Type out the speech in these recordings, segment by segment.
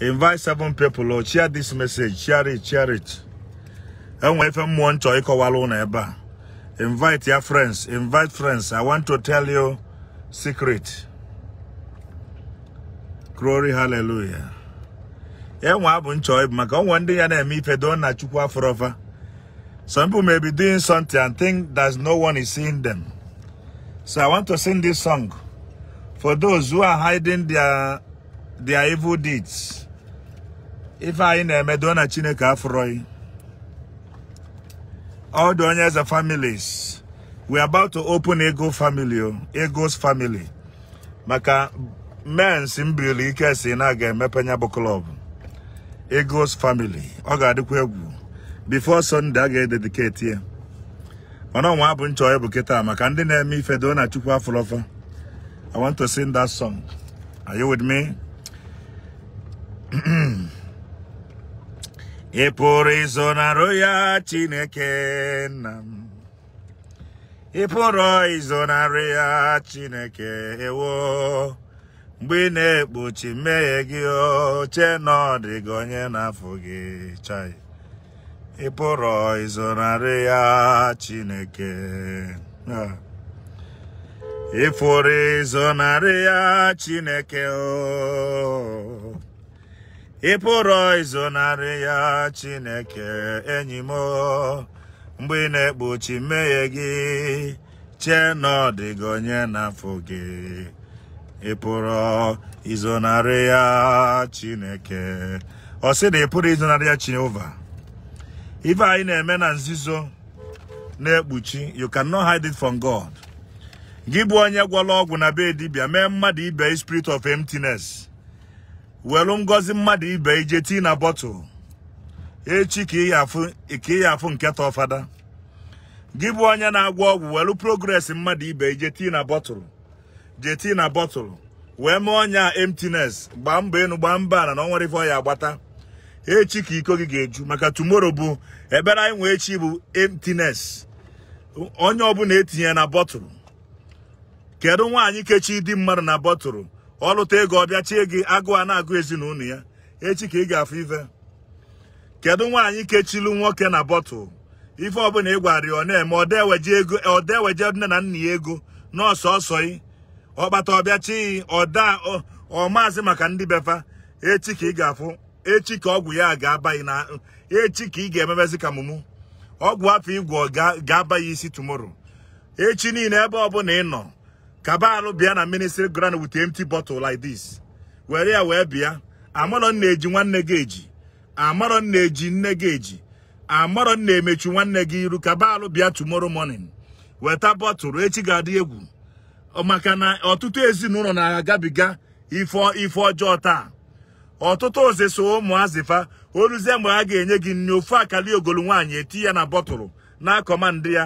Invite seven people, Lord. Share this message. Share it, share it. if I'm one to eba. Invite your friends. Invite friends. I want to tell you secret. Glory, hallelujah. Enwa eh, abu ncho ibu maka one day yana emi don't na chukwa forever. Some people may be doing something and think that no one is seeing them. So I want to sing this song for those who are hiding their their evil deeds. ife anyị na-eme doo na chineke afụrọghị all the eze families we are about to open ego family oh, ego's family maka mens mbriri ike si na aga emepe nya bụ klọb ego's family ọ ga-adịkwa egwu before Sunday a ga-edediketi ya mana ọnwa abụ nchọ bụ kịta maka ndị na-eme ife doo na chukwu afụrọfa I want to sing that song are you with me E por isso na roia tine quena. E por isso na roia tine quena. Bine buchi megio cheno de gonye na fugi chai. E por isso na roia tine quena. E por isso na roia tine quena. ị pụrụ izonarị ya Chineke enyi m mgbe ị na-ekpuchi mmehie gị chee na ọ dịghị onye n'afọ gị ị pụrụ izonarị ya Chineke ọ sị na ị pụrụ izonarị ya Chineke ife anyị na-eme na nzuzo na-ekpuchi you not hide it from God gị bụ onye gwọrọ ọgwụ na be dibia mee mmadụ ibe spirit of emptiness welu ngozi mmadụ ibe ije tii na bọtụl echi ka ị ya afụ nke ta ọfada gị bụ onye na-agwọ ọgwụ welu progress mmadụ ibe ije tii na bọtụl je tii na bọtụl wee mee ọnya emptiness gbaa mbọ enu gbaa mbọ ala na ọ nwere ife ọya agbata echi ka iko gị ga-eju maka tomorrow bụ ebere anyị nwee echi bụ emptiness onye ọbụla etinye na bọtụl kedu nwaanyị kechi dị mmadụ na bọtụl ọlụta ego ọbịa chie gị agụ a na-agụ ezinụlọ ya echi ka ị ga-afụ ife kedu nwaanyị kechilu nwoke na bọtụl ife ọbụla ị gwara ọ na-eme ọdeweje nne na nna ya ego nọọsụ ọsọ yi ọkpata ọbịa chi ọda ọmaazị maka ndị befa echi ka ị ga-afụ echi ka ọgwụ ya ga-abaghị na echi ka ị ga-ememezi ka mụmụ ọgwụ afọ igwọ ga-aba ya isi tumoro echi niile ebe ọbụla ị nọ kabalụ bịa na ministry ground with empty bottle like this were ya wee bịa eji nwanne gị eji amarọ nna eji nne gi eji amarọ nna emechi nwanne gi iru kabalụ bịa tomorrow morning weta bọtụlụ echi ga adi egwu maka na ọtụtụ ezinụlọ na-agabiga ife ọjọọ taa ọtụtụ oze so ụmụazịfa oluzie mgbe ha ga-enye gị nri ofu akali ogolu nwaanyị eti ya na bọtụlụ na akọmandị ya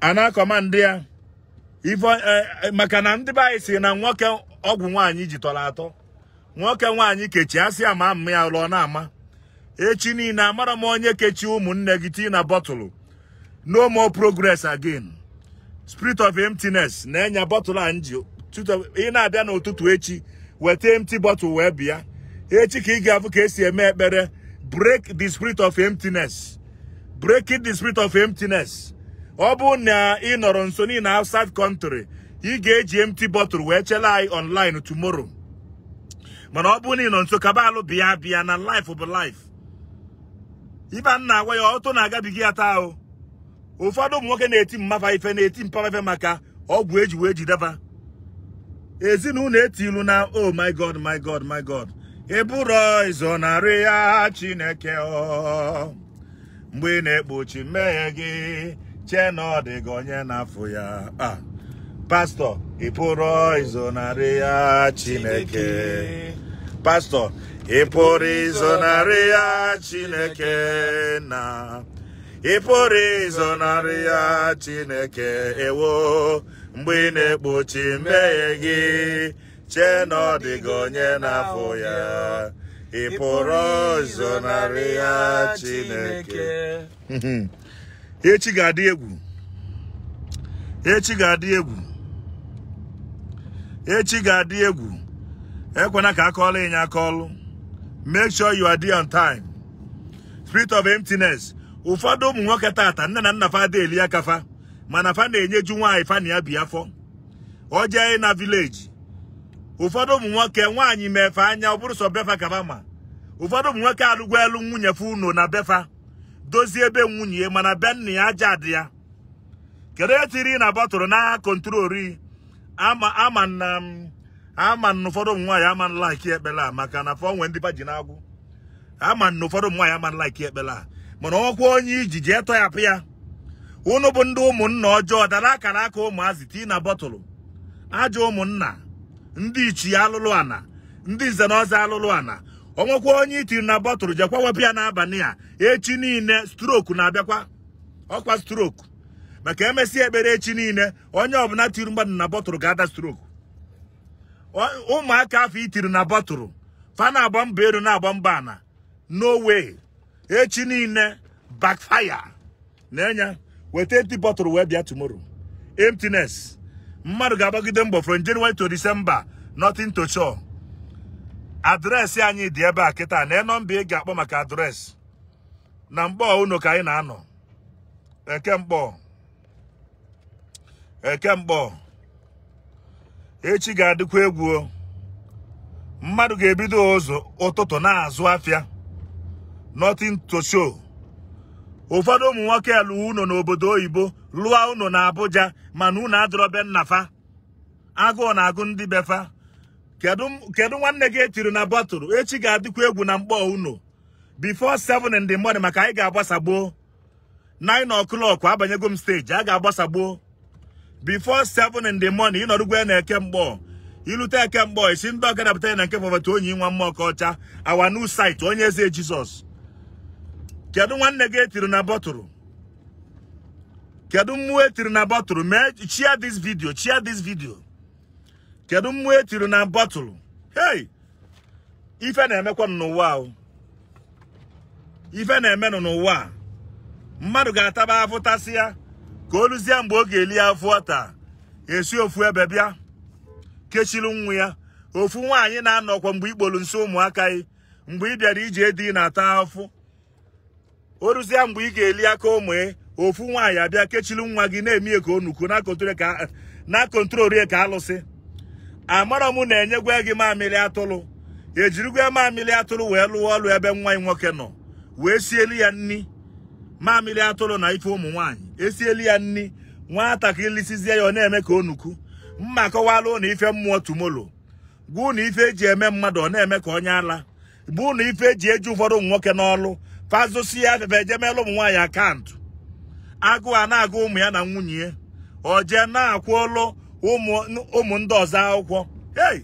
ana na-akọmandị ya ife e, maka na ndị be si na nwoke ọgwụ nwaanyị ji tọrọ atọ nwoke nwaanyị kechi asị ama m ya lụọ na-ama echi niile amara m onye kechi ụmụnne gị tii na bọtụlụ no more progress again spirit of emptiness na-enye bọtụlụ a nji ị na-abịa n'ụtụtụ echi weta empty bottle wee bịa echi ka ị ga-afụ ka esi eme ekpere break the spirit of emptiness breaking the spirit of emptiness ọ bụ na ị nọrọ nso niile na outside country ị ga-eji empty bottle wee chela anyị online tomorrow mana ọ bụ na ị nọ nso kaba alụ bịa bịa na life bụ life ibe a na-agwa ya ọtụ na-agabiga ya taa o ụfọdụ ụmụ nwoke na-eti mmafa ife na-eti mpafa ife maka ọgwụ eji wee jideba ezinụlọ ilu na oh my god my god my god Ị izo narị ya chineke ọ mgbe ị na-ekpochi mmehie gị chee na ọ dị gị onye na-afụ ya ah, pastọ ị pụrụ izonarị ya chineke pastọ ị pụrụ izonarị ya chineke na ị pụrụ izonarị ya chineke ewo mgbe ị na-ekpochi mmehie gị chee na ọ dị gị onye na-afụ ya ị pụrụ ya Chineke echi ga-adị egwu echi ga-adị egwu echi ga-adị egwu ekwena ka a ịnya akọọlụ make sure you are there on time spirit of emptiness ụfọdụ ụmụ nwoke tata nne na nna fa ada aka fa mana fa na-enyeju nwaanyị fa na ya bi afọ ọ na vileji ụfọdụ ụmụ nwoke nwaanyị mefe anya ọ bụrụ sọ befa kaba ma ụfọdụ ụmụ nwoke alụgwa elu nwunye fe unu na befa dozie ebe nwunye mana be nna ya aja dị ya kedu etiri na bọtụrụ n'agha kontrori ama ama na ama na ụfọdụ ụmụ nwaanyị ama nlaiki ekpele a maka na fọ nwe ndị baji na-agwụ ama na ụfọdụ ụmụ nwaanyị ama nlaiki ekpele a mana ọkwa onye iji jee tọyapụ ya unu bụ ndị ụmụnna ọjọọ dara akara aka ụmụazị tii na bọtụlụ ajọ ụmụnna ndị ichie alụlụ ana ndị nze na ọzọ alụlụ ana onwekwa onye itiri na bọtụlụ jekwa wepụ ya n'abalị a echi niile stroku na-abịakwa ọkwa stroku maka emesi ekpere echi niile onye ọbụla tiri mmadụ na bọtụlụ ga-ada stroku ụmụaka afọ itiri na bọtụlụ fana agba mba elu na-agba mba ana no echi niile backfire na-enye weta eti bọtụlụ wee bịa tomorrow mmadụ ga-agbagide mbọ from January to December nothing to adreesị anyị dị ebe a kịta na nọmba ị ga-akpọ maka adreesị na mkpọ unu ka anyị na-anọ eke mkpọ eke mkpọ echi ga-adịkwa egwu mmadụ ga-ebido ụzọ ụtụtụ na-azụ afịa nothing to show ụfọdụ ụmụ nwoke alụ ụnọ n'obodo oyibo lụọ ụnọ na Abuja mana ụnọ adọrọbe nnafa agụụ na-agụ ndị befa kedu nwanne gị etiri na bọtụlụ echi ga-adịkwa egwu na mkpọ unu bifo seven in the morning maka anyị ga agbasagboo nine o'clock abanyego m steji a ga-agbasagbuo before seven in the morning ịnọrụgwe na-eke mkpọ ilute eke mkpọ isi ndị ọka dapụtara na nke fọbata onye nwa mma ọka ọcha our new site onye eze jizọs kedu nwanne gị etiri na bọtụlụ kedu mmụọ etiri na bọtụlụ mee chia this video chia this video kedu mmụọ etiri na bọtụlụ hei ife na-emekwa n'ụwa ife na n'ụwa a mmadụ ga-ataba afụtasị ya ka o mgbe ọ ga-eli afụ ọta esi ofu ebe bịa kechiri nwa ya ofu nwaanyị na-anọkwa mgbe ikpolu nso ụmụaka yi mgbe ị bịara iji edi na-ata afụ o mgbe ị ga-eli aka ụmụ ofu nwaanyị abịa kechiri nwa gị na-emi ka onuku na kontrol ka alụsị amara m na enyegwa gị mamịrị atụrụ ejirigwe mamịrị atụrụ wee lụọ ọrụ ebe nwa ya nwoke nọ wee sieli ya nni mamịrị atụrụ na ife ụmụ nwaanyị esieli ya nni nwatakịrị lisizie ya ọ na-eme ka onuku mma kọwalụ na ife mmụọ tumolo gwụ na ife eji eme mmadụ ọ na-eme ka onye ala bụ na ife eji eji ụfọdụ ụmụ nwoke n'ọlụ fazụsi ya afefe eje meelụ ụmụ nwaanyị akaụntụ agụụ a na-agụ ụmụ ya na nwunye ya o jee na-akwụ ụlụ ụmụ ndị ọzọ akwụkwọ ei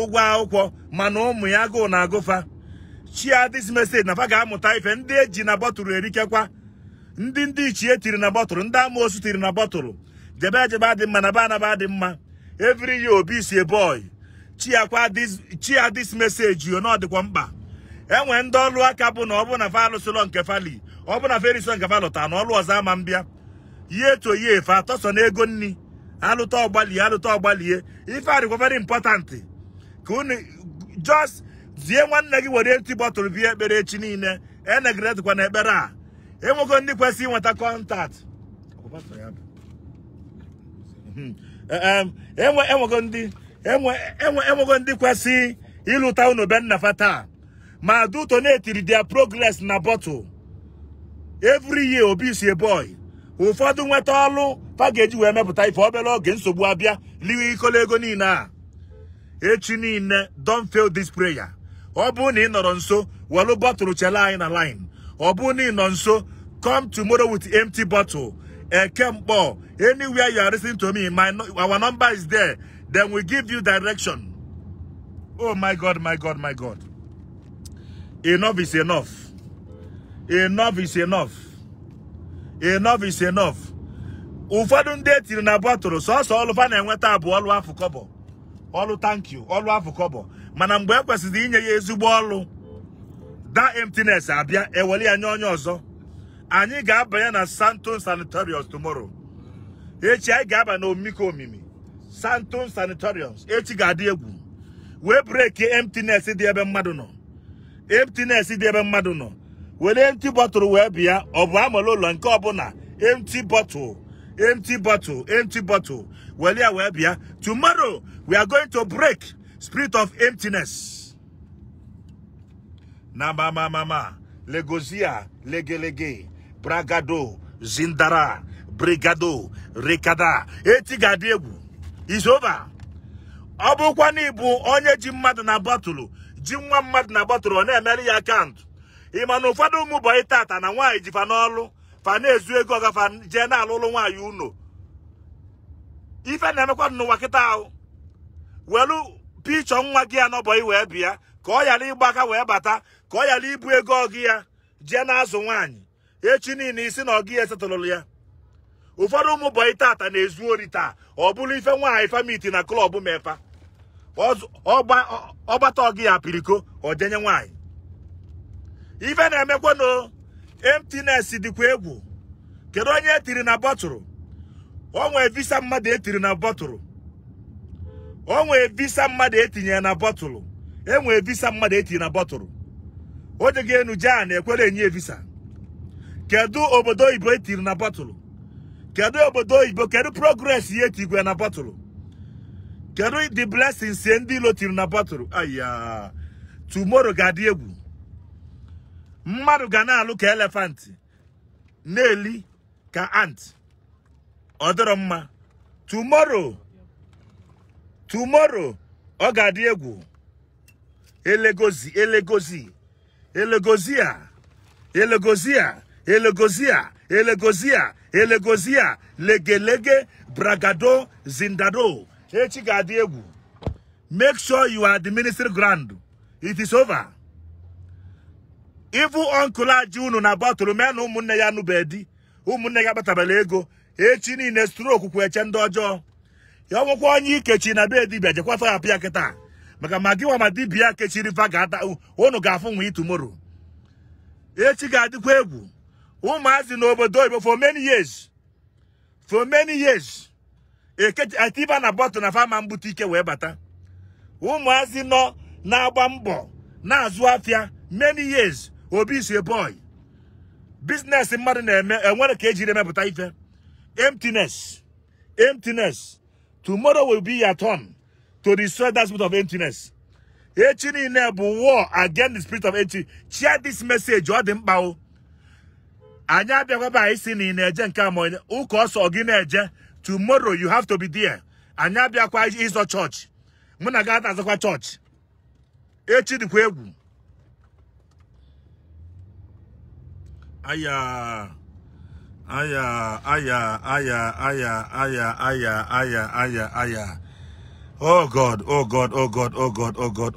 ụgwọ akwụkwọ mana ụmụ ya agụụ na agụfa chia dis message na fa ga-amụta ife ndị eji na bọtụlụ erikekwa ndị ndị ichie tiri na bọtụlụ ndị amaosu tiri na bọtụlụ jebe ejebe adị mma na be anaba adị mma every year obi si boy chiakwa chia yo na ọ mkpa enwe ndị ọlụ aka bụ na ọ bụ na fa alụsịlọ nke fali ọ bụ na fa nke fa na ọlụ ọzọ ama mbịa ye to ye fa atọsọ na ego nni alụta ọgbalie alụta ọgbalie ife a very important ka unu just zie nwanne gị were eti bọtụlụ bie ekpere echi niile enegiretikwa na ekpere a enwego ndị kwesịrị ịnweta kọntaktị enwego ndị kwesị ịlụta unu be nna taa ma duto na-etiri dia progress na bọtụl every year obi si boy ụfọdụ nweta ọlụ a wee mepụta ife obere oge nsogbu abịa liwe ikolo ego niile a echi niile don't fail this prayer ọ bụrụ na ị nọrọ nso welu bọtụlụ chele anyị na line ọ bụrụ na ị nọ nso come tomorrow with empty bottle eke mkpọ anywhere you are listening to me my our number is there then we give you direction oh my god my god my god enough is enough enough is enough enough is enough ụfọdụ ndị etiri na bọtụlụ sọsọ ọlụfa na-enweta abụ ọlụ afọ kọbọ ọlụ tankyu ọlụ afọ kọbọ mana mgbe e kwesịrị inye ya ezigbo ọlụ da emptiness abịa ewere ya nye onye ọzọ anyị ga-abanye na santon sanatoriums tomoro echi anyị ga-aba na omimiko omimi santon sanatoriums echi ga-adị egwu wee breki emptiness dị ebe mmadụ nọ emptiness dị ebe mmadụ nọ were emti bọtụlụ wee bịa ọ bụ amala ụlọ nke ọbụla emti bọtụlụ. empty bottle, empty bottle. Well, yeah, well, Tomorrow, we are going to break spirit of emptiness. Na mama mama, legozia, lege lege, bragado, zindara, brigado, rekada, etigadegu. It's over. Ọ bụkwa na ịbụ onye ji mmadụ na bọtụlụ ji nwa mmadụ na bọtụlụ ọ na-emere ya akaụntụ ị na ụfọdụ ụmụ bọyị tata na nwaanyị jifa fa na-ezu ego ọgafa je na-alụlụ nwaanyị unu ife na-emekwa n'ụwa kịta ahụ welu picho nwa ya anọbọyị wee bịa ka ọ ghara ịgba aka wee bata ka ọ ghara ibu ego ọgị ya jee na-azụ nwaanyi echi niile isi na ogi ya esetụlụlụ ya ụfọdụ ụmụ bọyị tata na-ezu ori taa ọ bụrụ ife nwaanyị famiti na klọb mefa ọgbata ọgị ya apiriko ọ jenye nwaanyị ife na-emekwanụ emptiness dịkwa egwu kedu onye etiri na bọtụrụ onwe visa mmadụ etiri na bọtụrụ onwe visa mmadụ etinye na bọtụrụ enwe visa mmadụ etinye na bọtụrụ oje ga enu jea na-ekwere enye visa kedu obodo oyibo etiri na bọtụrụ kedu obodo oyibo kedu progress ya etigwe na bọtụrụ kedu the blessings ndị ilo tiri na bọtụrụ aya tomorrow ga-adị egwu mmadụ ga na-alụ ka elefant na-eli ka ant ọ dịrọ mma tomorrow tomorrow ọ ga-adị egwu elegozi elegozi elegozia elegozia elegozia elegozia a, legelege bragado zindado echi ga-adị egwu make sure you are the ministry ground it is over ịbụ ọnkụl aji unu na bọtụlụ mee na ụmụnne ya nụbeghị di ụmụnne ya agbatabala ego echi niile stroku kwụ eche ndị ọjọọ ya ọnwụkwa onye ikechi na be dibia jekwata ya kịta maka ma gị nwa dibia kechiri fa ga-ata unu ga-afụ nwa itumoro echi ga-adịkwa egwu ụmụazị n'obodo oyibo for many years for many years etiba na bọtụl na fama mbute ike wee bata ụmụazị nọ na-agba mbọ na-azụ afịa many years obi is a boy business mmadụ na-eme enwere ka ejiri emepụta ife emptiness emptiness tomorrow will be your turn to destroy that spirit of emptiness echi niile e bụ war against the spirit of empty share this message ọ dị mkpa o anyị abịakwaba anyị si e na ị na-eje nke ama ụka ọsọ gị na-eje tomorrow you have to be there anyị abịakwa ịzọ chọọchị mụ na gị ata azakwa chọọchị echi dịkwa egwu Aya. Aya, aya, aya, aya, aya, aya, aya, aya, aya. Oh God, oh God, oh God, oh God, oh God.